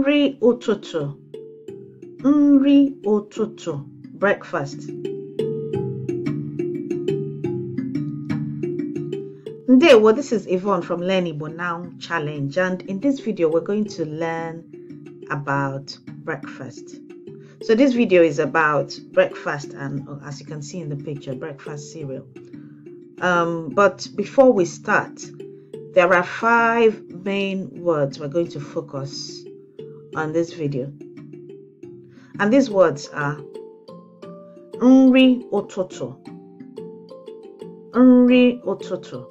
nri ụtụtụ nri ụtụtụ breakfast well, this is Yvonne from Learn Igbo Now Challenge and in this video we're going to learn about breakfast. So this video is about breakfast and as you can see in the picture, breakfast cereal. Um, but before we start, there are five main words we're going to focus on this video. And these words are Nri Ototo. Nri Ototo.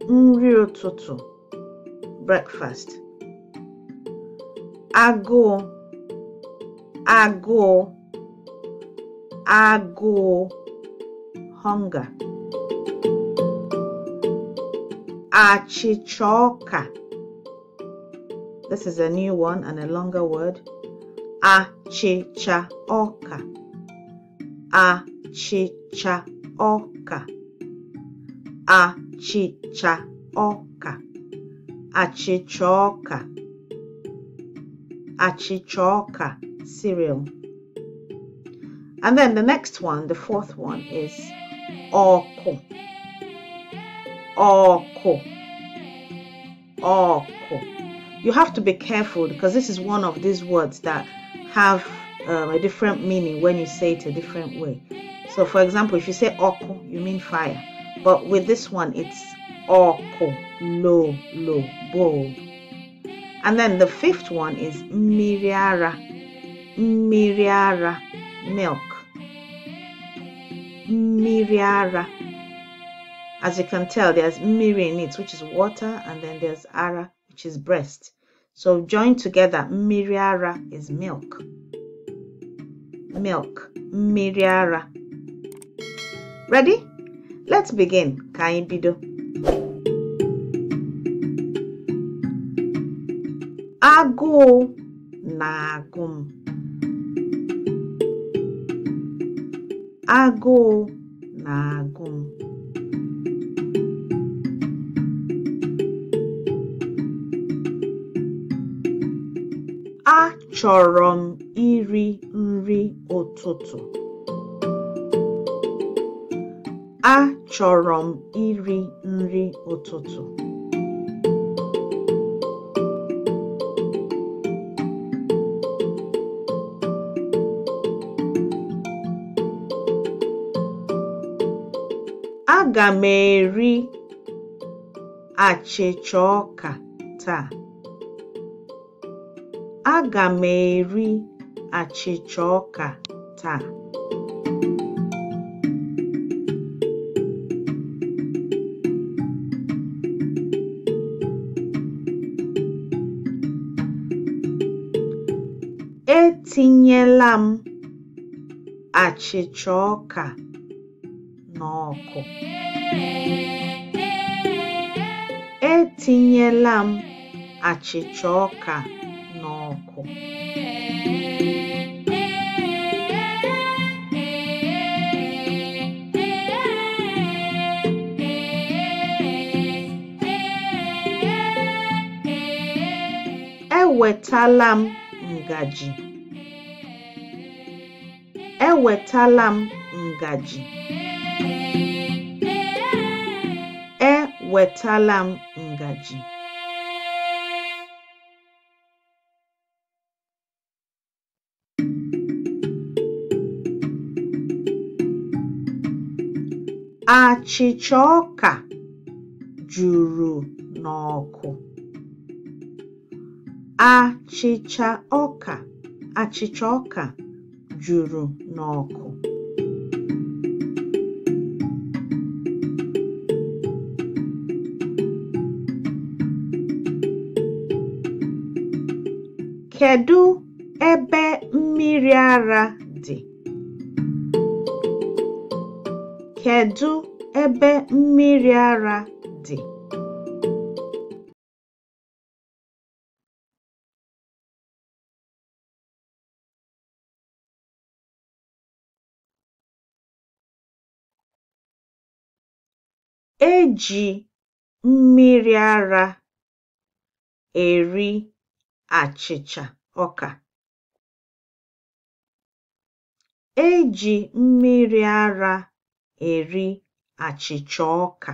Nri Ototo. Breakfast. Ago. Ago. Ago. Hunger. Achichoka. This is a new one and a longer word. cha oka. cha oka. cha oka. Achicha oka. Achicha oka cereal. And then the next one, the fourth one is oko. Oko. Oko you have to be careful because this is one of these words that have um, a different meaning when you say it a different way. So, for example, if you say oko, you mean fire, but with this one, it's oko, low, low, bold. And then the fifth one is miriara, miriara, milk, miriara. As you can tell, there's miri in it, which is water, and then there's ara, which is breast. So join together, miriara is milk. Milk, miriara. Ready? Let's begin. Kaimbido. Ago nagum. na-agụ nagum. Agụ chọrọ m iri nri ụtụtụ. m iri nri ụtụtụ. Aga m eri achịcha ọka taa. Aga m eri achịcha ọka taa. Etinyela m achịcha ọka n'ọkụ. Etinyela m achịcha ọka n'ọkụ Ewetala m ngaji. Ewetala m ngaji. Ewetala m ngaji. Achịcha ọka juru n'ọkụ. Achịcha ọka achịcha ọka juru n'ọkụ. kedu ebe mmiri ara dị? kedu ebe mmiri ara dị? eji mmiri ara eri achịcha ọka. eji mmiri ara eri àchị̀chà ọka.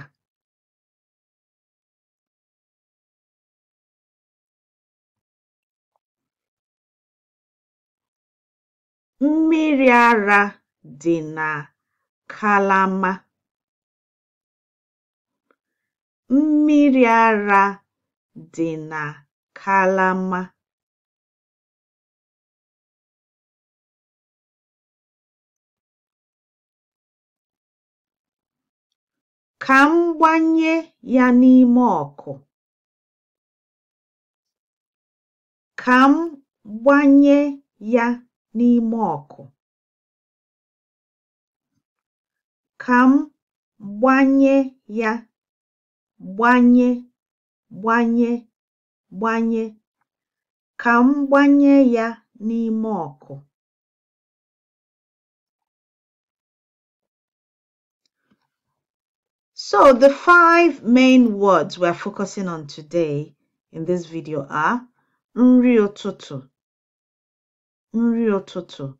Mmiri ara dị na kalama. Mmiri ara dị na kalama. Ka m gbanye ya gbanye gbanye ya, ka m gbanye ya n'ime ọkụ. So the five main words we're focusing on today in this video are nri ụtụtụ,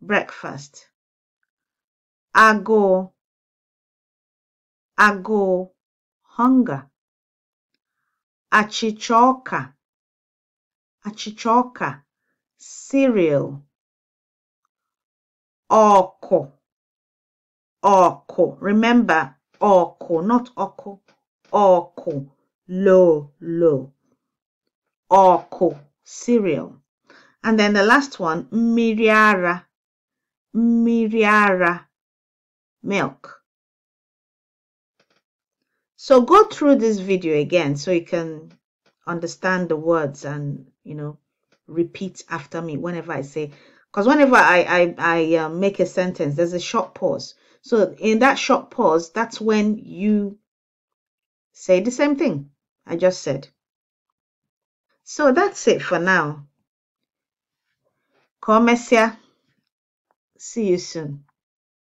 breakfast, *ago*, *ago*, hunger, *achichoka*, *achichoka*, cereal, *oko*, *oko*. Remember, Oko, not oko. Oko, low, low. Oko, cereal. And then the last one, miriara, miriara, milk. So go through this video again so you can understand the words and, you know, repeat after me whenever I say, because whenever I, I, I uh, make a sentence, there's a short pause. So in that short pause, that's when you say the same thing I just said. So that's it for now. Come, Messia. See you soon.